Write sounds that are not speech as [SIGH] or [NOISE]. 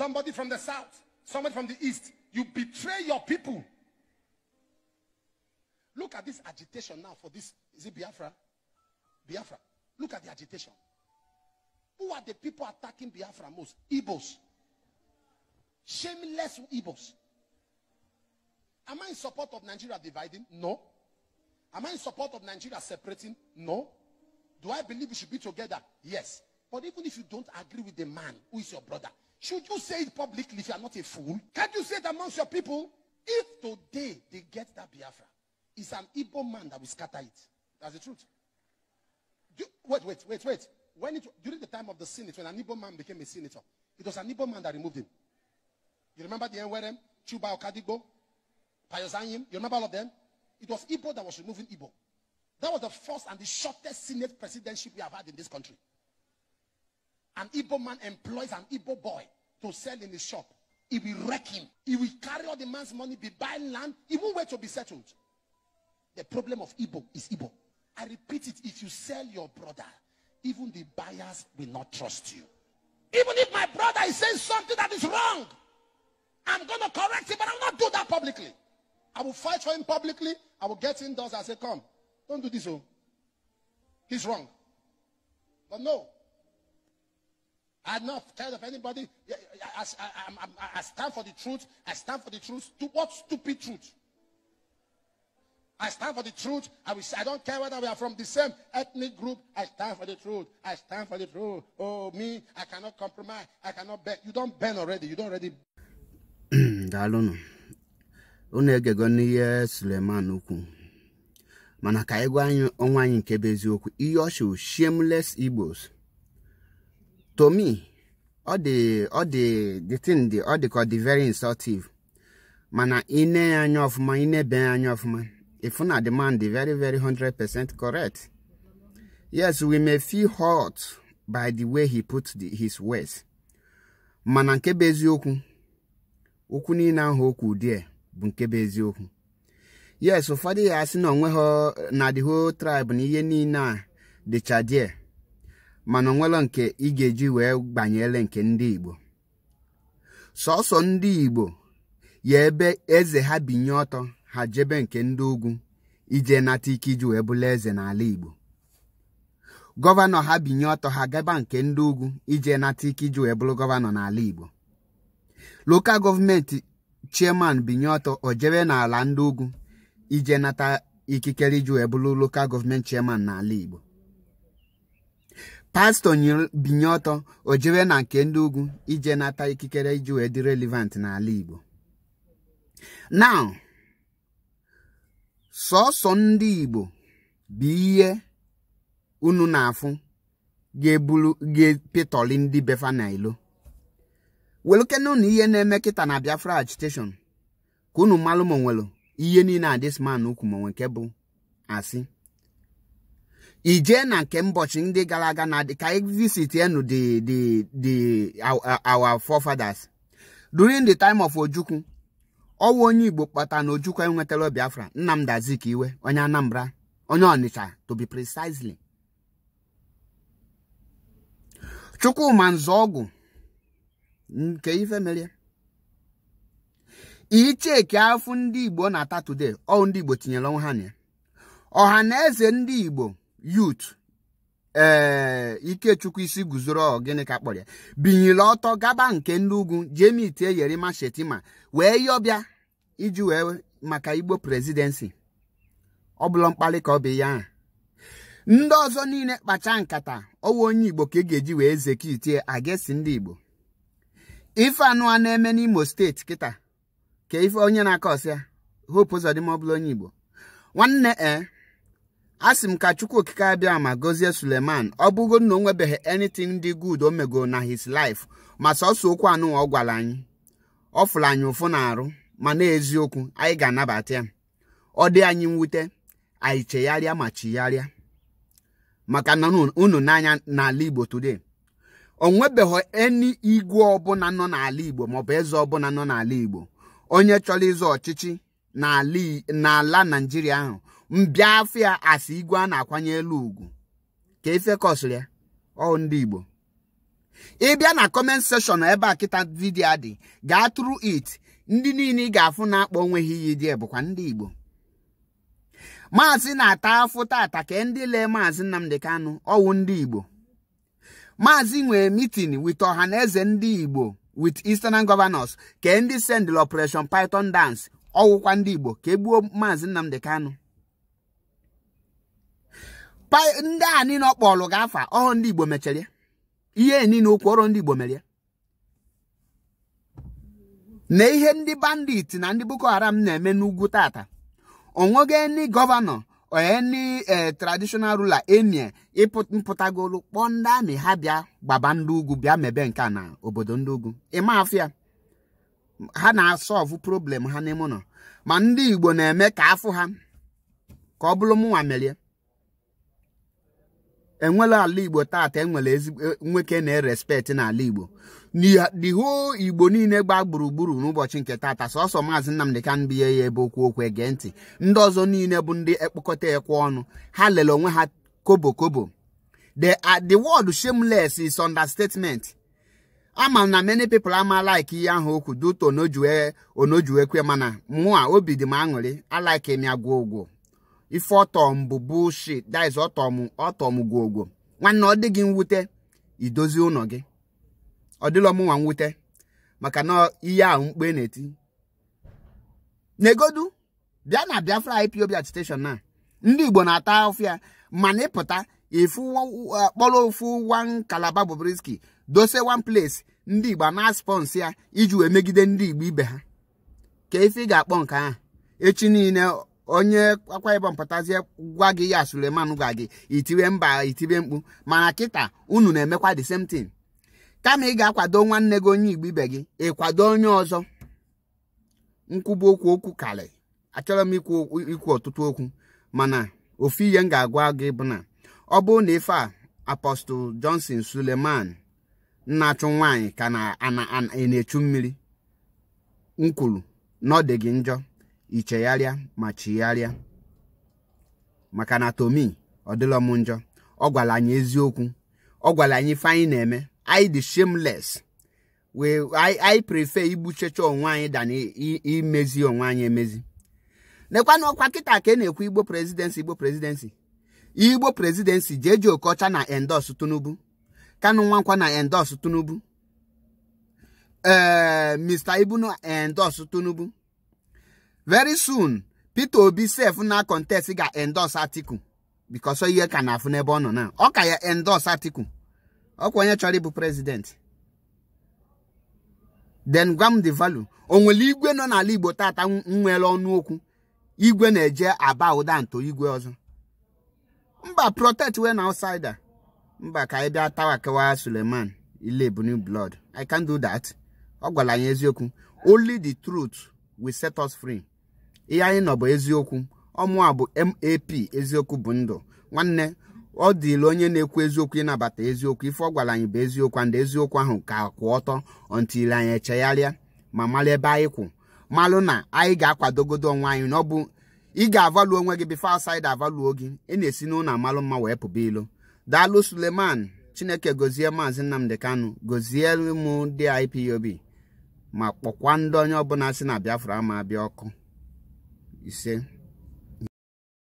somebody from the south, somebody from the east. You betray your people. Look at this agitation now for this. Is it Biafra? Biafra. Look at the agitation. Who are the people attacking Biafra most? Igbos. Shameless Igbos. Am I in support of Nigeria dividing? No. Am I in support of Nigeria separating? No. Do I believe we should be together? Yes. But even if you don't agree with the man who is your brother, should you say it publicly if you are not a fool? Can't you say it amongst your people? If today they get that Biafra, it's an Igbo man that will scatter it. That's the truth. Do, wait, wait, wait, wait. When it, during the time of the Senate, when an Igbo man became a senator, it was an Igbo man that removed him. You remember the NWRM, Chuba Okadigbo, Payosanyim? You remember all of them? It was Igbo that was removing Igbo. That was the first and the shortest Senate presidency we have had in this country. An Igbo man employs an Igbo boy to sell in his shop. He will wreck him. He will carry all the man's money, be buying land. even where to be settled. The problem of Igbo is Igbo. I repeat it. If you sell your brother, even the buyers will not trust you. Even if my brother is saying something that is wrong, I'm going to correct him, but I will not do that publicly. I will fight for him publicly. I will get indoors and say, come, don't do this. Oh. He's wrong. But no, I'm not scared of anybody. I, I, I, I, stand for the truth. I stand for the truth. To what stupid truth? I stand for the truth. I, will, I don't care whether we are from the same ethnic group. I stand for the truth. I stand for the truth. Oh, me, I cannot compromise. I cannot bend. You don't bend already. You don't already. [CLEARS THROAT] Dalụnụ, unu egego n'ihe Suleman ukwu mana ka anyị gwa anyị ọnwa anyị nke bụ eziokwu ihe ọ shameless Igbos to me ọ dị ọ dị the thing dị ọ dịka dị very insultive mana ine ya anya ọfụma inebe ya anya ọfụma ifu na demand dị very very 100% correct yes we may feel hurt by the way he put the, his words mana nke bụ eziokwu okwu niile ahụ okwu die bụ nke bụ eziokwu yes ụfọdụ ya asị na onwe ha na the whole tribe na ihe niile a dịcha there mana onwelo nke ị ga-eji wee gbanyele nke ndị Igbo sọsọ ndị Igbo ya ebe eze ha binye ọtọ ha jebe nke ndị ugwu ije nata ike iji wee bụla eze n'ala Igbo gọvanọ ha binye ọtọ ha gaba nke ndị ugwu ije nata ike iji wee bụrụ gọvanọ n'ala Igbo lokal gọọmenti chairman binye ọtọ o jebe n'ala ndị ugwu ije nata ikikere iji wee bụrụ lokal gọọmenti chairman n'ala Igbo pastọ binye ọtọ o na nke ndị ugwu ije nata ikikere iji wee dị relevant n'ala Igbo now sọsọ ndị Igbo bụ ihe unu na-afụ ga-eburu ga ndị befa na ilo welukenu ihe na-eme kịta na Biafra agitation ka unu malụ ma ihe niile a ma bụ asị ijee na nke mbọchị ndị gara aga na ka visit enu the the our forefathers during the time of ojukwu ọwụ onye igbo kpata na ojukwu enwetara biafra nnamdi azikiwe onye anambra onye ọnịcha to be precisely chukwuma ọgwụ nke ife mere icheki afụ ndị igbo na-ata today ọ ndị igbo tinyere ọnwụ ha na ya ọha na eze ndị igbo yut ee eh, ikechukwu isi guzoro gịnị ka kpọrọ ya binyere ọtọ gaba nke ndị ugwu jemi tie yerima shetima wee yọbịa iji wee maka igbo prezidensi ọ bụla mkpali ka ọ bụ ya ndị ọzọ niile kpacha nkata ọwa onye igbo ka ị e ga-eji wee zekitie agesi ndị igbo ife anụ na-eme n'imo steeti kịta ka ife onye na-akọ ọsịa hope ụzọdịma onye igbo nwanne e a sị m ka chukwu okike abịa ma gọzie suleman ọ bụgo na o nwebeghị anything dị good o megoro na his life ma sọsọ okwu anụ ọ gwara anyị ọ fụrụ anyị ụfụ na-arụ ma na eziokwu anyị ga-anabata ya ọ dị anyị mwute anyị chegharịa ma chigharịa maka na unu n'anya n'ala igbo today o nwebeghị eni igwe ọbụla nọ n'ala igbo maọbụ eze ọbụla nọ n'ala igbo onye chọrọ ịzọ ọchịchị n'ala naijiria ahụ mbịa afọ ya asị igwe a na-akwanye elu ugwu ka ife e kọsịrị ya ọ ndị Igbo ịbịa na kọment sekshọn ebe a kịta vidiyo adị gaa tụrụ it ndị niile ị ga-afụ na-akpọ onwe ha iyi dị bụkwa ndị Igbo maazị na-ata afụ taata ka ndị lee maazị Nnamdị Kanụ ọwụ ndị Igbo maazị nwere mitin wit ọha na eze ndị Igbo wit Eastern Gọvanọs ka ndị sendịl Operation Python Dance ọwụkwa ndị Igbo ka e gbuo maazị Nnamdị Kanụ ndị a niile ọ kpọlụ ga-afa ọhụrụ ndị Igbo mechara ihe niile okwu ọrụ ndị Igbo mere na ihe ndị bandit na ndị Boko Haram na-eme n'ugwu tata onwego ndị gọvanọ onye eh, traditional rula emie mpụtagolu kpọọ ndị amị ha bịa gbaba ndị ugwu bịa mebe nke na obodo ndị ugwu ịma afịa ha na-asọvụ problem ha n'ime ụlọ ma ndị Igbo na-eme ka afụ ha ka ọ bụrụ mụnwa merie enwela ala igbo taata enwere ezigbo e, nwoke na-erespekt n'ala igbo n'ihu igbo niile gbaa gburugburu n'ụbọchị nke taata sọsọ maazị Nnamdi Kanu ya ebe okwu okwu ege ntị ndị ọzọ niile bụ ndị ekpokọta ekwe ọnụ ha lere onwe ha kobo kobo the uh, word shameless is understatement ama na many people ama like ihe ahụ okwu duto onojuekwe mana mụa obi dị m aṅụrị alaike m ya gwụ ụgwọ ife ọtọm bụ bullshit that is ọtọm ọtọm gwogwo nwanne ọ dị gị mwute idozi ụlọ gị ọ dịlọ mụnwa mwute maka na ihe ahụ mkpe na-eti negodu bịa na biafra ipob attestation na ndị igbo na-ata ọfịa mana ịpụta ịfụ kpọrọ ofu wan kalaba bobrisky dose one place ndị igbo na spons ya iji wee megide ndị igbo ibe ha ka ife ị ga-akpọ nke ahụ echi niile onye akwa ibom pụtazie gwa gị ya suleman gwa gị itiwe mba itiwe mkpu mana kịta unu na-emekwa the same thing kama ị ga-akwado nwanne gị onye igbo ibe gị ịkwado onye ọzọ nkwubu okwu okwu karị achọrọ m ikwu ọtụtụ okwu mana ofu ihe m ga-agwa gị bụ na ọ bụrụ na ife a apọstụl johnson suleman nna-achụ nwaanyị ka na-echu mmiri m kwuru na ọ dị gị njọ ichegharịa ma chigharịa maka na tomi ọ njọ ọ anyị eziokwu ọ gwara anyị ife anyị na-eme anyị dị shameless wee anyị prefer igbuchecha onwe anyị i imezi onwe anyị emezi nekwana ọkwa kịta ka ị e na-ekwu igbo presidency igbo presidensi igbo presidency jeje okocha na endos tunubu kanu nwankwa na endos tunubu mr ibunu endos tunubu. very soon Peter Obi sef na contest ga-endorse article because ihe ka na-afụ n'ebe ọ nọ na ọ ka ya endorse article ọkwa onye chọrọ ịbụ president then gwa m the value o nwere igwe nọ n'ala Igbo tata nwere ọnụ okwu igwe na-eje aba ụda nto igwe ọzọ mba protect wey na outsider mba ka anyị bịa tawa kewa Suleman ile I can do that ọ gwara anyị eziokwu only the truth will set us free ihe anyị nọ bụ eziokwu ọmụa bụ map eziokwu bụ ndụ nwanne ọ dịla onye na-ekwu eziokwu ịnabata eziokwu ife ọ gwara anyị bụ eziokwu ndị eziokwu ahụ ka kwụ ọtọ ọntili anyị echegharịa ma mara ebe anyị kwụ malụ na anyị ga-akwadogodo onwe anyị na ọ bụ ị ga-avalu onwe gị bifo asaid avaluo gị ị na-esi n'ụlọ amalụ mma wee pụba ilo daalụ suleman chineke gozie maazị nnamdị Kanu gozie m ndị ipob ma kpọkwa ndị onye ọbụla si na Biafra ma abịa ọkụ ise